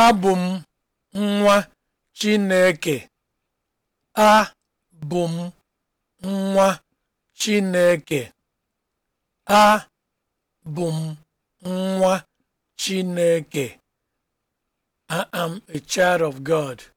abụ m nwa Chineke abụ m nwa Chineke abụ m nwa Chineke I am a child of God